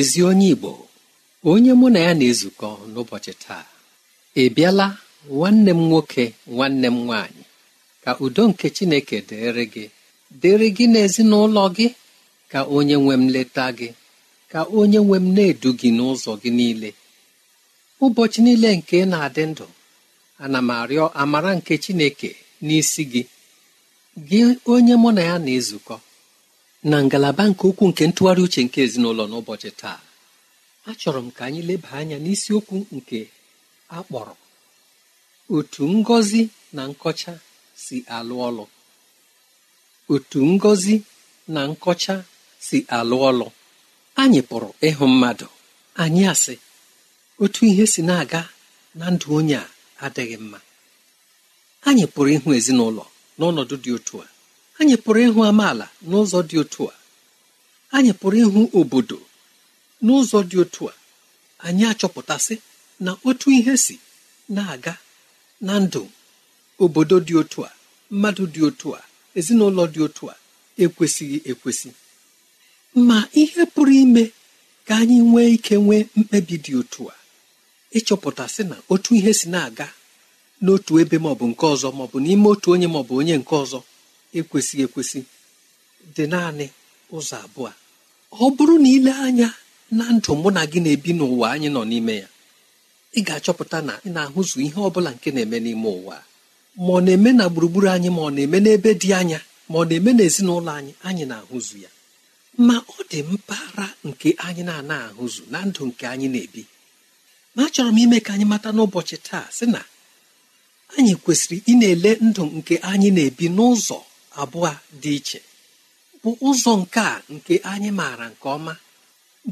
ezi onye igbo onye mụ na ya na-ezukọ n'ụbọchị taa ị bịala nwanne m nwoke nwanne m nwaanyị ka udo nke chineke dịrị gị dịrị gị n'ezinụlọ gị ka onye nwe m leta gị ka onye nwe m na-edu gị n'ụzọ gị niile ụbọchị niile nke na-adị ndụ ana m arịọ amara nke chineke n'isi gị gị onye mụ na ya na-ezukọ na ngalaba nke ukwuu nke ntụgharị uche nke ezinụlọ n'ụbọchị taa achọrọ m ka anyị leba anya n'isiokwu nke akpọrọ otu ngọzi na nkọcha si alụ ọlụ otu ngọzi na nkọcha si alụ ọlụ anyị pụrụ ịhụ mmadụ anyị asị otu ihe si na-aga na ndụ onye a adịghị mma anyị pụrụ ịhụ ezinụlọ n'ọnọdụ dị otu a anyị pụrụ ịhụ amaala n'ụzọ dị otu a anyị pụrụ ịhụ obodo n'ụzọ dị otu a anyị achọpụtasị na otu ihe si na-aga na ndụ obodo dị otu a mmadụ dị otu a ezinụlọ dị otu a ekwesịghị ekwesị ma ihe pụrụ ime ka anyị nwee ike nwee mkpebi dị otu a ịchọpụtasị na otu ihe si na-aga n'otu ebe maọbụ nke ọzọ maọbụ n'ime otu onye maọbụ onye nke ọzọ ekwesịghị ekwesị dị naanị ụzọ abụọ ọ bụrụ na ile anya na ndụ mụ na gị na-ebi n'ụwa anyị nọ n'ime ya ị ga-achọpụta na ị na-ahụzụ ihe ọ bụla nke na-eme n'ime ụwa ma ọ na-eme na gburugburu anyị ma ọ na-eme n'ebe dị anya ma ọ na-eme n'ezinụlọ anyị anyị na-ahụzụ ya ma ọ dị mpaghara nke anyị na-ana ahụzụ na ndụ nke anyị na-ebi ma achọrọ m ime ka anyị mata n'ụbọchị taa sị na anyị kwesịrị ị na-ele ndụ nke anyị na-ebi n'ụzọ abụọ dị iche bụ ụzọ nke a nke anyị maara nke ọma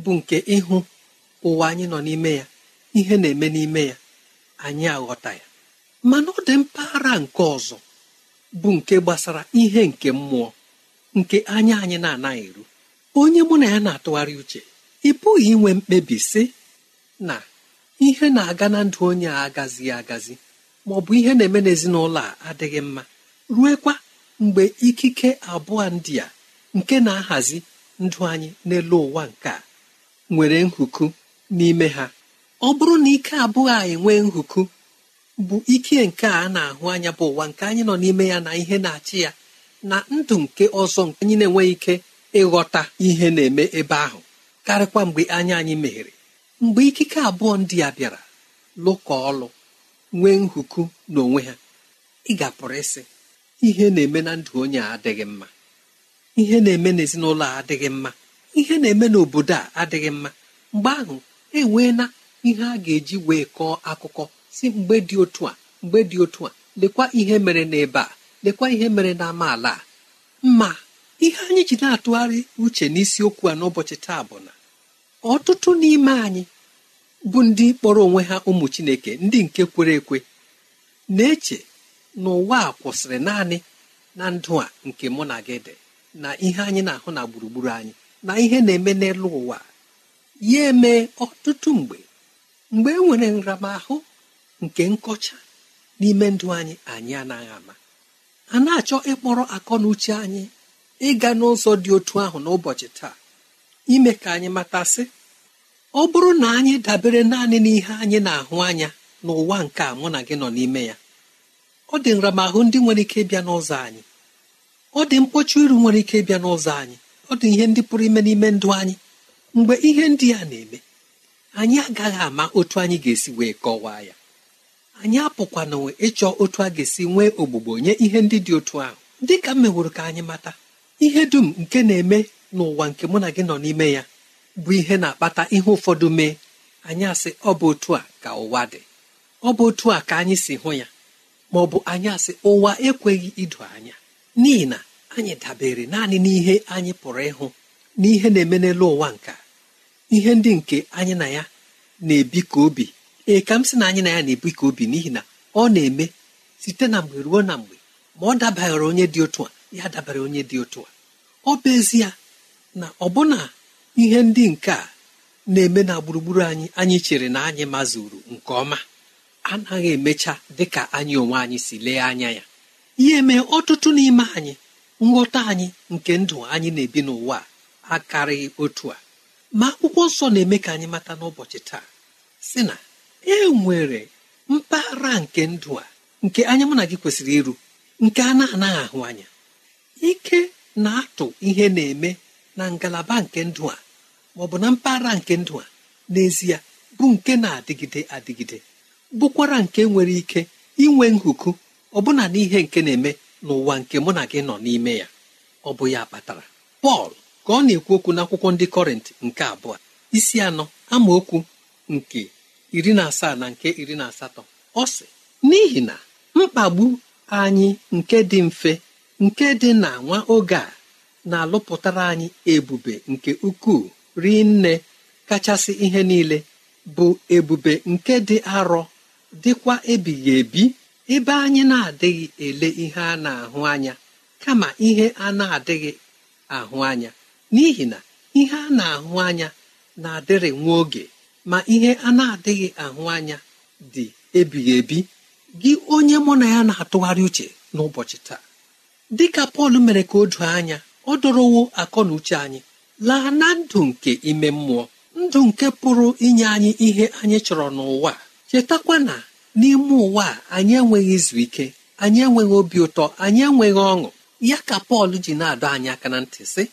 bụ nke ịhụ ụwa anyị nọ n'ime ya ihe na-eme n'ime ya anyị aghọta ya mana ọ dị mpaghara nke ọzọ bụ nke gbasara ihe nke mmụọ nke anya anyị na-anaghị eru onye mụ na ya na-atụgharị uche ị pụghị inwe mkpebi sị na ihe na-aga na ndụ onye a agazighị agazi ma ọ bụ ihe na-eme n'ezinụlọ a adịghị mma ruekwa mgbe ikike abụọ ndị a nke na-ahazi ndụ anyị n'elu ụwa nke a nwere nhuku n'ime ha ọ bụrụ na ike abụọ a enwe nhuku bụ ike nke a na-ahụ anya bụ ụwa nke anyị nọ n'ime ya na ihe na-achị ya na ndụ nke ọzọ nke anyị na-enweghị ike ịghọta ihe na-eme ebe ahụ karịkwa mgbe anya anyị meghere mgbe ikike abụọ ndị a bịara lụkọ ọlụ nwee nhuku n'onwe ha ị ga-apụrụ ịsị ihe na-eme na ndụ onye a adịghị mma ihe na-eme n'ezinụlọ a adịghị mma ihe na-eme n'obodo a adịghị mma mgbe ahụ enweela ihe a ga-eji wee kọọ akụkọ si mgbe dị otu a mgbe dị otu a lekwa ihe mere n'ebe a lekwa ihe mere n'amaala a ma ihe anyị ji na-atụgharị uche n'isiokwu a n'ụbọchị taa bụ na ọtụtụ n'ime anyị bụ ndị kpọrọ onwe ha ụmụ Chineke ndị nke kwere ekwe na-eche n'ụwa a kwụsịrị naanị na ndụ a nke mụ na gị dị na ihe anyị na-ahụ na gburugburu anyị na ihe na-eme n'elu ụwa ya eme ọtụtụ mgbe mgbe e nwere nramahụ nke nkọcha n'ime ndụ anyị anyị anaghị ama a na-achọ ịkpọrọ akọ na uche anyị ịga n'ụzọ dị otu ahụ n'ụbọchị taa ime ka anyị matasị ọ bụrụ na anyị dabere naanị n'ihe anyị na-ahụ anya n'ụwa nke a mụ na gị nọ n'ime ya ọ dị nramahụ ndị nwere ike ịbịa n'ụzọ anyị ọ dị mkpọchi iru nwere ike ịbịa n'ụzọ anyị ọ dị ihe ndị pụrụ ime n'ime ndụ anyị mgbe ihe ndị a na-eme anyị agaghị ama otu anyị ga-esi wee kọwaa ya anyị apụkwananwe ịchọ otu a ga-esi nwee ogbugbo nye ihe ndị dị otu ahụ dị ka m meworo ka anyị mata ihe dum nke na-eme n'ụwa nke mụ na gị nọ n'ime ya bụ ihe na-akpata ihe ụfọdụ mee anyị asị ọ bụ otu a ka ụwa dị ọ bụ otu a ka anyị si hụ ya ma ọ bụ anyị asị ụwa ekweghị idu anya n'ihi na anyị dabere naanị n'ihe anyị pụrụ ịhụ n'ihe na-eme n'elu ụwa nka ihe ndị nke anyị na ya na-ebi ka obi ee ka m sị na anyị na ya na-ebi ka obi n'ihi na ọ na-eme site na mgbe ruo na mgbe ma ọ dabara onye dị otu a ya dabara onye dị otu a ọ bụ ezie na ọbụna ihe ndị nke a na-eme na gburugburu anyị anyị chere na anyị mazuru nke ọma anaghị emecha dị ka anyị onwe anyị si lee anya ya ihe mee ọtụtụ n'ime anyị nghọta anyị nke ndụ anyị na-ebi n'ụwa akarịghị otu a ma akwụkwọ nsọ na-eme ka anyị mata n'ụbọchị taa si na e nwere mpaghara nke ndụ a nke anya mụ na gị kwesịrị iru nke a na-anaghị ahụ anya ike na-atụ ihe na-eme na ngalaba nke ndụ a ma ọ bụ na mpaghara nke ndụ a n'ezie bụ nke na-adịgide adịgide bụkwara nke nwere ike inwe nhuku ọbụna n'ihe nke na-eme n'ụwa nke mụ na gị nọ n'ime ya ọ bụ ya kpatara pọl ka ọ na-ekwu okwu n'akwụkwọ ndị kọrịntị nke abụọ isi anọ amaokwu nke iri na asaa na nke iri na asatọ ọ sị n'ihi na mkpagbu anyị nke dị mfe nke dị na nwa oge a na-alụpụtara anyị ebube nke ukwuu rinne kachasị ihe niile bụ ebube nke dị arọ dịkwa ebighị ebi ebe anyị na-adịghị ele ihe a na-ahụ anya kama ihe a na-adịghị ahụ anya n'ihi na ihe a na-ahụ anya na-adịrị nwa oge ma ihe a na-adịghị ahụ anya dị ebighị ebi gị onye mụ na ya na-atụgharị uche n'ụbọchị taa dịka Pọl mere ka o doo anya ọ dọrọwo akọ na uche anyị laa na ndụ nke ime mmụọ ndụ nke pụrụ inye anyị ihe anyị chọrọ n'ụwa chetakwa na n'ime ụwa a anyị enweghị izu ike anyị enweghị obi ụtọ anyị enweghị ọṅụ ya ka pọl ji na-adọ anyị aka na ntị sị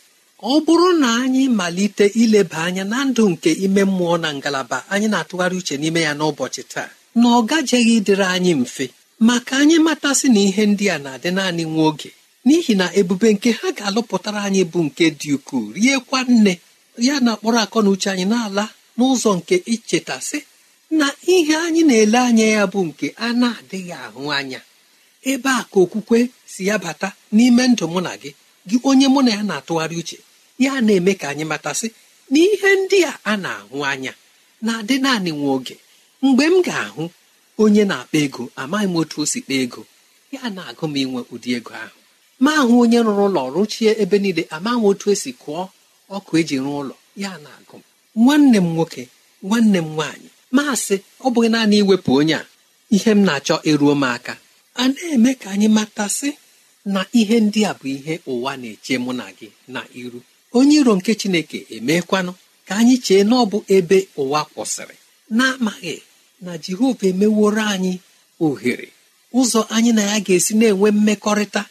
ọ bụrụ na anyị malite ileba anya na ndụ nke ime mmụọ na ngalaba anyị na-atụgharị uche n'ime ya n'ụbọchị taa na ọ gajeghị ịdịrị anyị mfe maka anyị matasị na ihe ndị a na-adị naanị nwa oge n'ihi na ebube nke ha ga-alụpụtara anyị bụ nke dị ukwuu riekwa nne ya na kpọrọ akọ na uche anyị na-ala n'ụzọ nke ichetasị na ihe anyị na-ele anya ya bụ nke a na-adịghị ahụ anya ebe a ka okwukwe si ya bata n'ime ndụ mụ na gị gị onye mụ na ya na-atụgharị uche ya na-eme ka anyị matasị na ihe ndị a a na-ahụ anya na-adị naanị nwa oge mgbe m ga-ahụ onye na-akpa ego amaghị m otu o si kpaa ego ya na-agụ m inwe ụdị ego ahụ ma ahụ onye rụrụ ụlọ rụchie ebe niile amaghị m otu esi kụọ ọkụ eji rụọ ụlọ ya na-agụ m nwanne m nwoke nwanne m nwaanyị maasị ọ bụghị naanị iwepụ onye a ihe m na-achọ eruo m aka a na-eme ka anyị matasị na ihe ndị a bụ ihe ụwa na-eche mụ na gị na iru onye iro nke chineke emekwanụ ka anyị chee na ọ bụ ebe ụwa kwụsịrị na-amaghị na jehova emeworo anyị ohere ụzọ anyị na ya ga-esi na-enwe mmekọrịta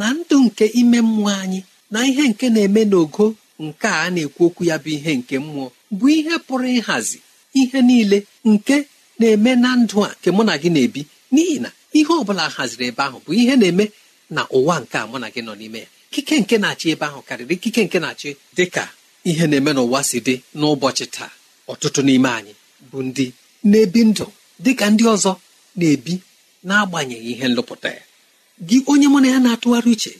na ndụ nke ime mmụọ anyị na ihe nke na-eme n'ogo nke a na-ekwu okwu ya bụ ihe nke mmụọ bụ ihe pụrụ ịhazi ihe niile nke na-eme na ndụ a nke mụ na gị na-ebi n'ihi na ihe ọ bụla haziri ebe ahụ bụ ihe na-eme na ụwa nke a mụ na gị nọ n'ime ya ikike nke na-achị ebe ahụ karịrị ikike nke na-achị dị ka ihe na-eme n'ụwa si dị n'ụbọchị taa ọtụtụ n'ime anyị bụ ndị na-ebi ndụ dị ka ndị ọzọ na-ebi n'agbanyeghị ihe nlụpụta ya gị onye mụ na ya na-atụgharị uche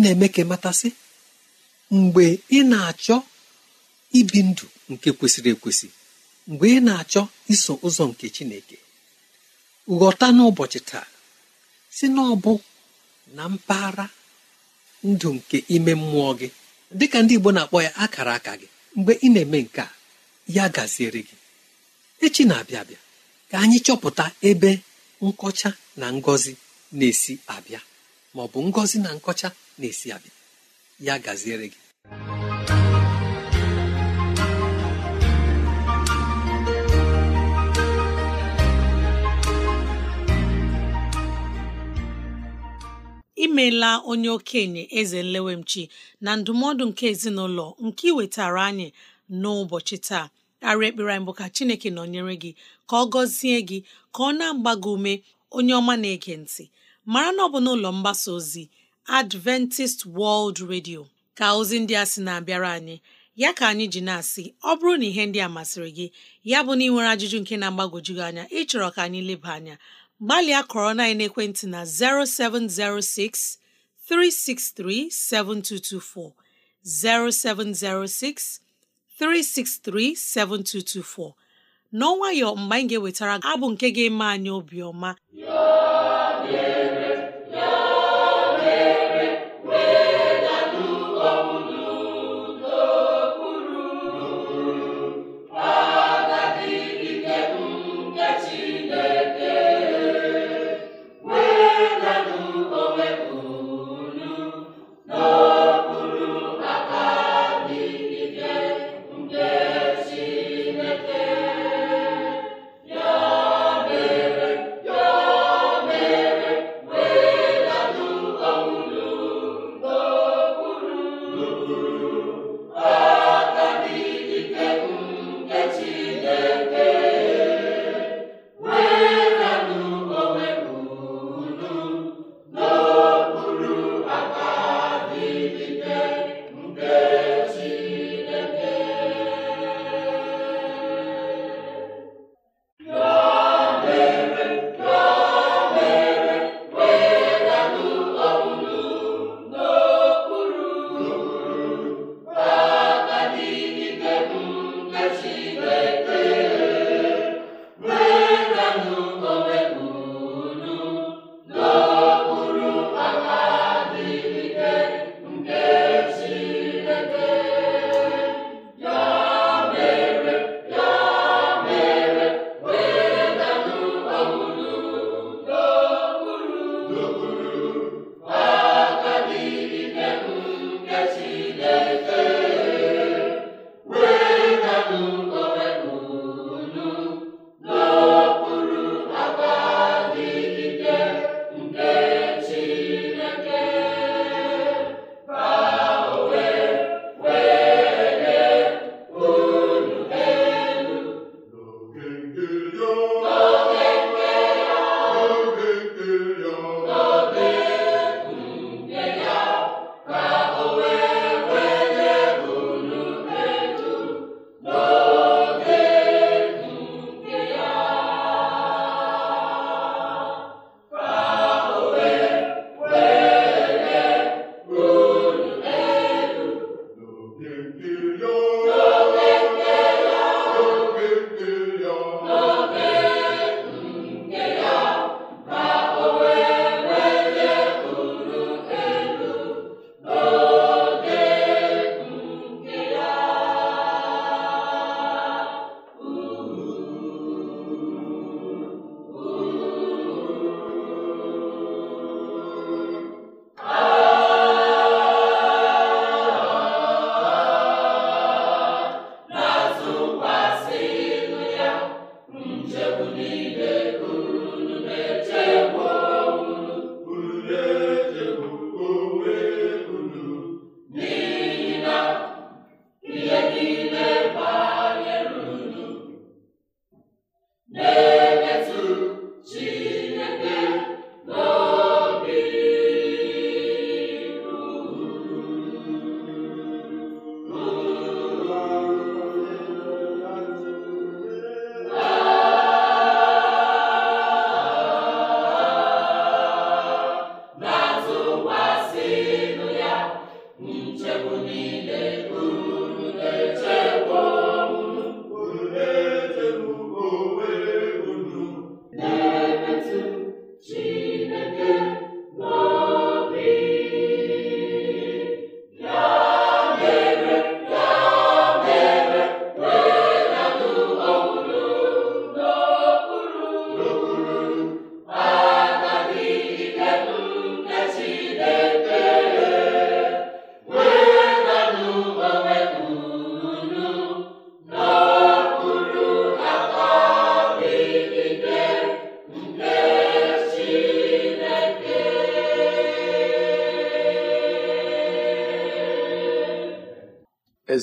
na-eme ka matasị mgbe ị na-achọ ibi ndụ nke kwesịrị ekwesị mgbe ị na-achọ iso ụzọ nke chineke ghọta n'ụbọchị taa si n'ọbụ na mpaghara ndụ nke ime mmụọ gị dịka ndị igbo na-akpọ ya akara aka gị mgbe ị na-eme nke a ya gaziere gị echi na-abịa abịa ka anyị chọpụta ebe nkọcha na ngọzi na-esi abịa ma ọ bụ ngọzi na nkọcha na-esi abịa ya gaziere gị imela onye okenye eze nlewemchi na ndụmọdụ nke ezinụlọ nke iwetara anyị n'ụbọchị taa arị ekpere anyị bụ ka chineke nọnyere gị ka ọ gọzie gị ka ọ na-agba gị ume onye ọma na-ege ntị mara na ọ bụ n'ụlọ mgbasa ozi Adventist World Radio ka ozi ndị a sị na-abịara anyị ya ka anyị ji na-asị ọ bụrụ na ihe ndị a masịrị gị ya bụ na ị nwere ajụjụ nke na-agbagwoju anya ịchọrọ ka anyị leba anya gbalịa kọrọ na ekwentị na 0706 363 7224, 0706 363 7224. n'ọnwayọ mgbe anyị ga-ewetara abụ nke ga-eme anyị obiọma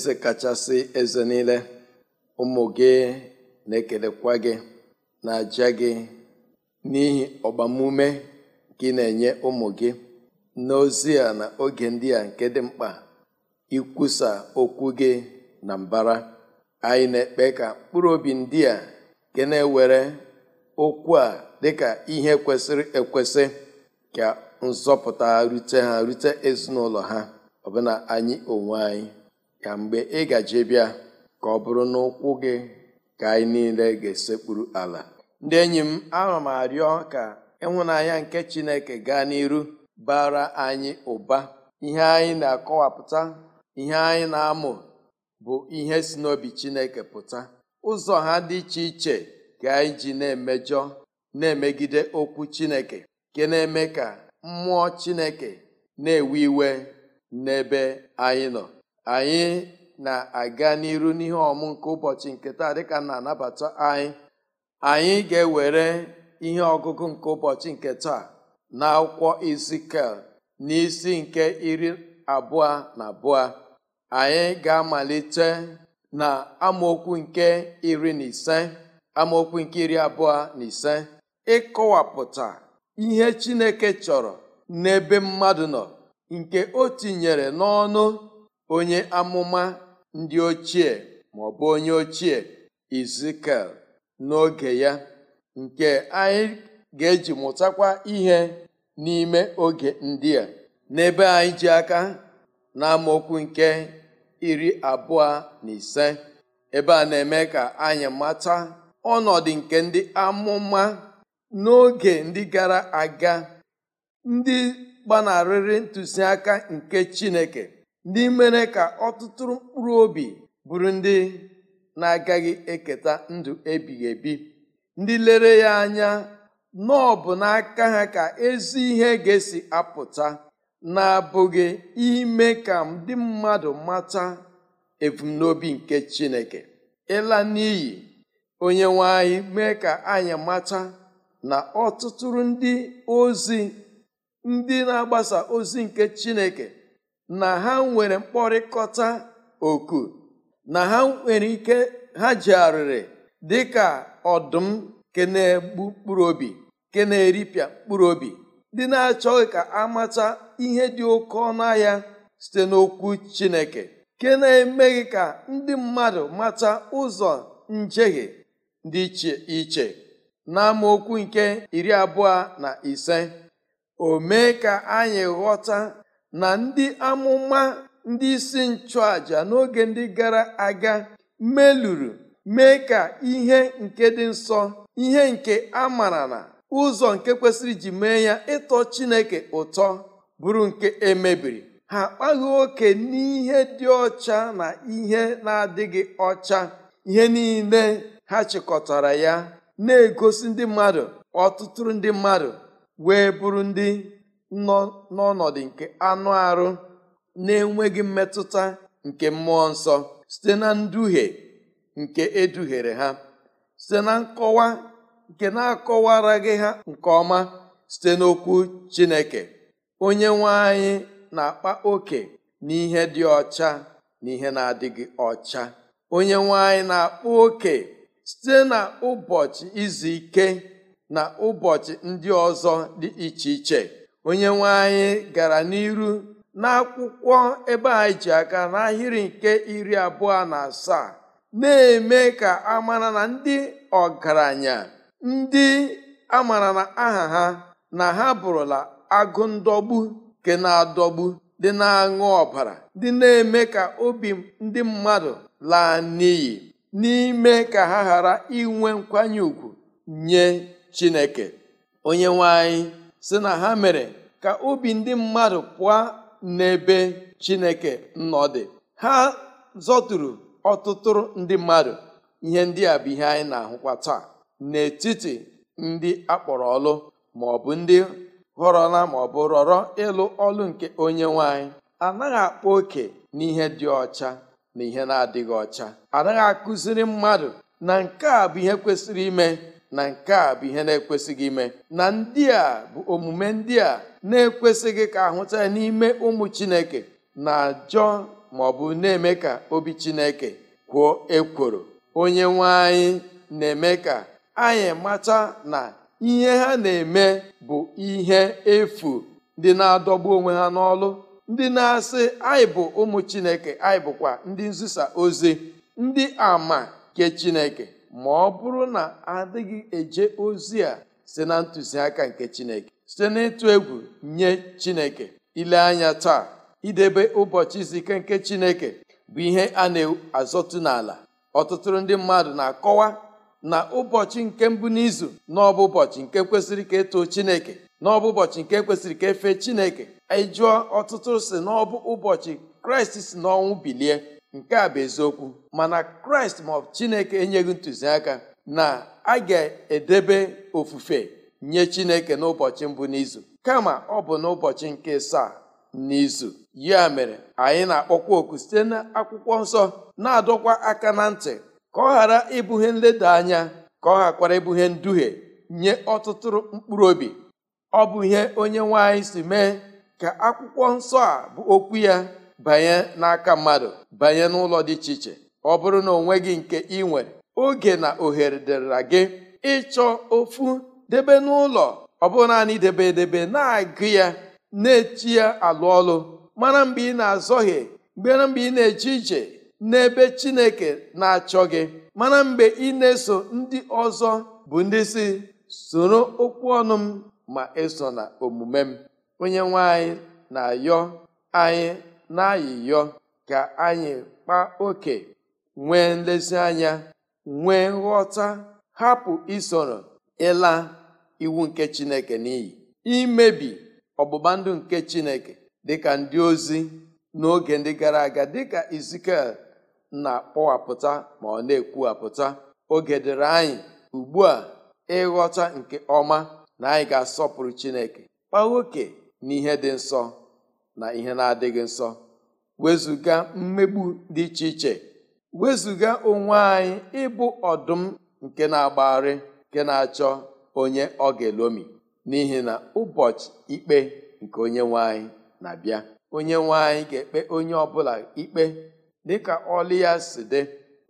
eze kachasị eze niile ụmụ gị na-ekelekwa gị na-aja gị n'ihi ọgbamume gị na-enye ụmụ gị n'ozi a na oge ndị a nke dị mkpa ikwusa okwu gị na mbara anyị na-ekpe ka mkpụrụ obi ndị a gị na-ewere okwu a dịka ihe kwesịrị ekwesị ka nzọpụta rute ha rute ezinụlọ ha ọbụna anyị onwe anyị ka mgbe ị gaje bịa ka ọ bụrụ na ụkwụ gị ka anyị niile ga-esekpuru ala ndị enyi m ana m arịọ ka ịhụnanya nke chineke gaa n'iru bara anyị ụba ihe anyị na-akọwapụta ihe anyị na-amụ bụ ihe si n'obi chineke pụta ụzọ ha dị iche iche ka anyị ji na-emejọ na-emegide okwu chineke nke na-eme ka mmụọ chineke na-ewe iwe n'ebe anyị nọ anyị na-aga n'iru n'ihe ọmụ nke ụbọchị nke taa dịka na anabata anyị anyị ga-ewere ihe ọgụgụ nke ụbọchị nke taa na akwụkwọ izikel isi nke iri abụọ na abụọ anyị ga-amalite na amaokwu nke iri na ise amaokwu nke iri abụọ na ise ịkọwapụta ihe Chineke chọrọ n'ebe mmadụ nọ nke o tinyere n'ọnụ onye amụma ndị ochie ma ọ onye ochie Izikel n'oge ya nke anyị ga-eji mụtakwa ihe n'ime oge ndị a n'ebe anyị ji aka na nke iri abụọ na ise ebe a na-eme ka anyị mata ọnọdụ nke ndị amụma n'oge ndị gara aga ndị gbanarịrị ntụziaka nke Chineke ndị mere ka ọtụtụ mkpụrụ obi bụrụ ndị na-agaghị eketa ndụ ebighị ebi ndị lere ya anya na bụ n'aka ha ka ezi ihe ga-esi apụta na-abụghị ime ka ndị mmadụ mata ebumnobi nke Chineke ịla n'iyi onye nwe anyị mee ka anyị mata na ọtụtụ ndị ozi ndị na-agbasa ozi nke Chineke na ha nwere mkpọrịkọta oku na ha nwere ike ha ji arịrị dịka ọdụm ke na-egbu mkpụrụ obi ke na-eripịa mkpụrụ obi na-achọghị ka amata ihe dị oke ọnụ ahịa site n'okwu Chineke ke na-emeghị ka ndị mmadụ mata ụzọ njehie dị iche iche n'amaokwu nke iri abụọ na ise o mee ka anyị ghọta na ndị amụma ndị isi nchụàjà n'oge ndị gara aga meluru mee ka ihe nke dị nsọ ihe nke a mara na ụzọ nke kwesịrị iji mee ya ịtọ Chineke ụtọ bụrụ nke emebiri ha akpaghị oke n'ihe dị ọcha na ihe na-adịghị ọcha ihe niile ha chịkọtara ya na-egosi ndị mmadụ ọtụtụ ndị mmadụ wee bụrụ ndị nọ n'ọnọdụ nke anụ arụ na-enweghị mmetụta nke mmụọ nsọ site na nduhie nke eduhiere ha site na nkọwa nke na-akọwaraghị ha nke ọma site n'okwu Chineke onye nwe anyị na-akpa oke n'ihe dị ọcha na ihe na-adịghị ọcha onye nwe anyị na-akpa oke site na ụbọchị izu ike na ụbọchị ndị ọzọ dị iche iche onye nwe gara n'iru n'akwụkwọ ebe a e ji aka n'ahịrị nke iri abụọ na asaa na-eme ka amara na ndị ọgaranya ndị amara na aha ha na ha bụrụla agụ ndọgbu nke na-adọgbu dị na-aṅụ ọbara dị na-eme ka obi ndị mmadụ laa n'iyi n'ime ka ha ghara inwe nkwanye ùgwù nye Chineke onye nwe si na ha mere ka obi ndị mmadụ pụọ n'ebe chineke nnọ ha zọturu ọtụtụrụ ndị mmadụ ihe ndị a bụ ihe anyị na-ahụkwa taa n'etiti ndị akpọrọ ọlụ ma ọ bụ ndị họrọla ma ọ bụ rọrọ ịlụ ọlụ nke onye nwanyị anaghị akpa oke n'ihe dị ọcha na ihe na-adịghị ọcha anaghị akụziri mmadụ na nke a bụ ihe kwesịrị ime na nke a bụ ihe na-ekwesịghị ime na ndị a bụ omume ndị a na-ekwesịghị ka ahụta ya n'ime ụmụ chineke na-ajọ ma ọ bụ na-eme ka obi chineke kwuo ekworo onye nwe anyị na-eme ka anyị macha na ihe ha na-eme bụ ihe efu ndị na-adọgbu onwe ha n'ọlụ ndị na-asị anyị bụ ụmụ chineke anyị bụkwa ndị nzisa ozi ndị ama nke chineke ma ọ bụrụ na adịghị eje ozi a site na ntụziaka nke Chineke site n'ịtụ egwu nye Chineke ile anya taa idebe ụbọchị izike ike nke Chineke bụ ihe a na-azọtụ n'ala ọtụtụ ndị mmadụ na-akọwa na ụbọchị nke mbụ n'izu n'ọbụ ụbọchị nke kwesịrị ka eto Chineke n'ọbụ ụbọchị nke kwesịrị ka efe Chineke ịjụọ e ọtụtụ si n'ọbụ ụbọchị Kraịst si n'ọnwụ bilie nke a bụ eziokwu mana kraịst maọbụ chineke enyeghị ntụziaka na a ga-edebe ofufe nye chineke n'ụbọchị mbụ n'izu kama ọ bụ n'ụbọchị nke saa n'izu ya mere anyị na-akpọkwa oku site n'akwụkwọ nsọ na-adọkwa aka na ntị ka ọ ghara ịbụghị nleda anya ka ọ ghakwara ịbụghị nduhie nye ọtụtụ mkpụrụ obi ọ bụ ihe onye nwe anyị si mee ka akwụkwọ nsọ a bụ okwu ya banye n'aka mmadụ banye n'ụlọ dị iche iche ọ bụrụ na onwe gị nke ị nwere oge na ohere dịrịra gị ịchọ ofu debe n'ụlọ ọ bụrụ naanị debe edebe na-agụ ya na-eti ya alụ ọlụ mara mgbe ị na-azọghị mgbera mgbe ị na-eje ije n'ebe Chineke na-achọ gị mana mgbe ị na-eso ndị ọzọ bụ ndị si soro okwu ọnụ m ma eso na omume m onye nwe anyị na-ayọ anyị n'ayịyọ ka anyị kpaa oke nwee nlezianya nwee nghọta hapụ isoro ịla iwu nke Chineke n'iyi imebi ọgbụgba ndụ nke Chineke dịka ndị ozi n'oge ndị gara aga dịka Ezikiel na-akpọwapụta ma ọ na-ekwuwapụta oge dịrị anyị ugbu a ịghọta nke ọma na anyị ga-asọpụrụ Chineke kpaa oke n'ihe dị nsọ na ihe na-adịghị nsọ wezụga mmegbu dị iche iche wezụga onwe anyị ịbụ ọdụm nke na-agbagharị nke na-achọ onye ọ ga-elomi n'ihi na ụbọchị ikpe nke onye nwe anyị na-abịa onye nwe anyị ga-ekpe onye ọbụla ikpe dịka ọlụ ya si dị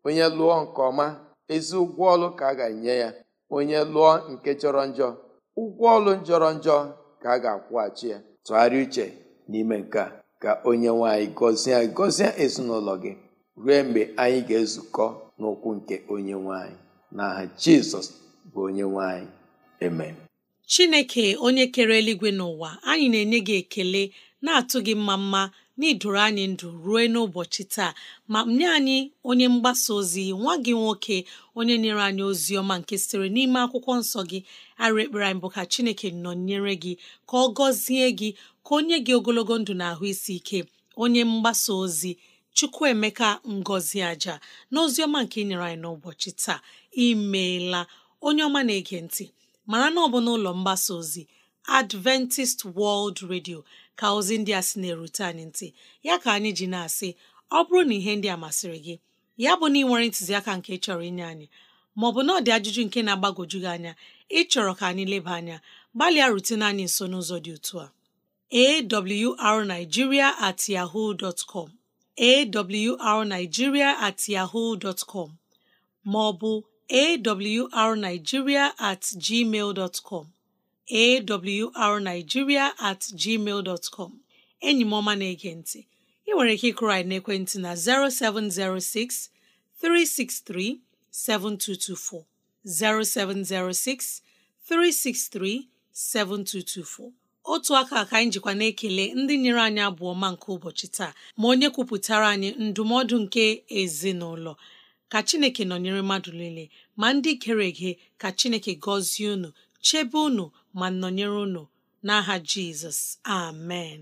onye lụọ nke ọma ezi ụgwọ ọlụ ka a ga-enye ya onye lụọ nke jọrọ njọ ụgwọ ọlụ jọrọ njọ ka a ga-akwụghachi ya tụgharịa uche n'ime nke a ka onye nwanyị gọzie gọzie ezinụlọ gị ruo mgbe anyị ga-ezukọ n'ụkwụ nke onye nwanyị n'aha jizọs bụ onye nwanyị amen chineke onye kere eluigwe n'ụwa anyị na-enye gị ekele na-atụ gị mma mma n'idoro anyị ndụ ruo n'ụbọchị taa ma nye anyị onye mgbasa ozi nwa gị nwoke onye nyere anyị ozi ọma nke sitere n'ime akwụkwọ nsọ gị arụ ekpere anyị bụ ka chineke nọ nyere gị ka ọ gọzie gị ka onye gị ogologo ndụ na ahụ isi ike onye mgbasa ozi Chukwuemeka Ngozi Aja n'ozi ọma nke inyere anyị n'ụbọchị taa imeela onye ọma na-ege ntị mara na ọ bụ n'ụlọ mgbasa ozi Adventist World Radio ka ozi ndị a sị na-erute anyị ntị ya ka anyị ji na-asị ọ bụrụ na ihe ndị a masịrị gị ya bụ na ị nwere ntụziaka nke chọrọ inye anyị maọbụ na ọ dị ajụjụ nke na-agbagwoju gị anya ịchọrọ ka anyị leba anya gbalịa rutene anyị nso n'ụzọ dị otu a awrnigeria at yahoo com awrnigeria at yahoo dot com ma ọ bụ awrnigeria at gmail dot com at gmail dot enyi m ọma na-ege ntị ị nwere ike ịkụrụ anyị n'ekwentị na 0706 363 7224 0706 363 7224 otu aka ka anyị jikwa na-ekele ndị nyere anyị abụọ ma nke ụbọchị taa ma onye kwupụtara anyị ndụmọdụ nke ezinụlọ ka Chineke nọnyere mmadụ niile ma ndị kere gị ka Chineke gọzie unu chebe unu ma nọnyere unu n'aha Jizọs amen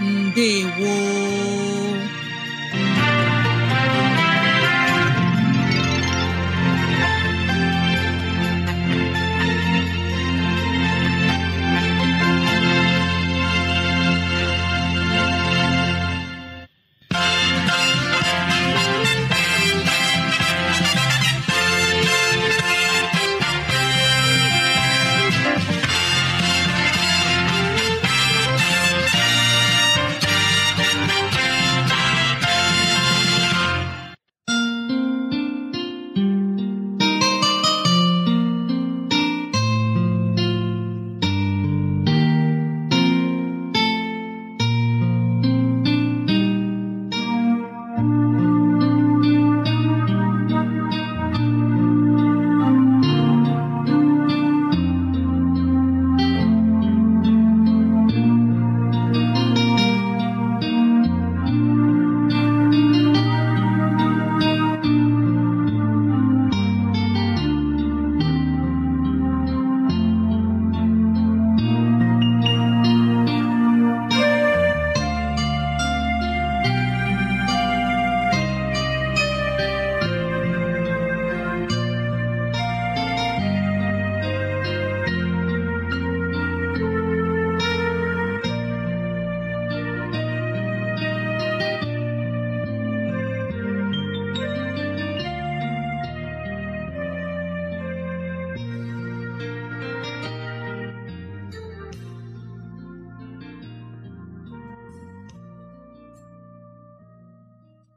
ndewo